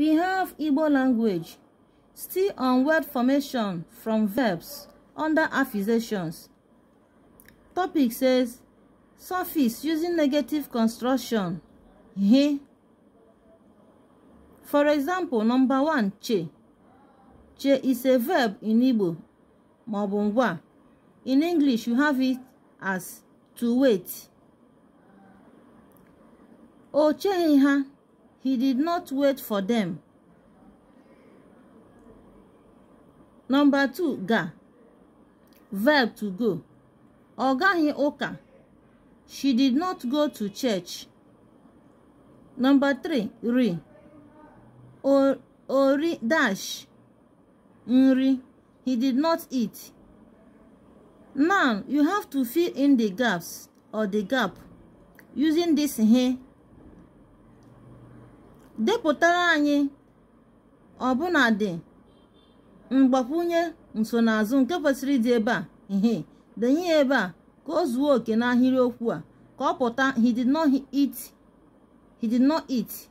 We have Igbo language, still on word formation from verbs under affixations. Topic says suffix using negative construction. He. For example, number one, che. Che is a verb in Igbo, maọbụ In English, you have it as to wait. O che ha. He did not wait for them. Number two, ga. Verb to go. Ọgaghị oka. She did not go to church. Number three, ri. Or, ori dash. Nri. He did not eat. Now, you have to fill in the gaps or the gap using this here depụtara anyị dị mgbakwunye nsonaazụ nke kwesịrị ịdị ebe a ihe denye ya ebe a ka o zuo oke n'ahịrịokwu a ka ọ pụta